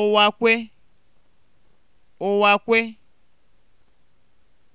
ụwakwe ụwakwe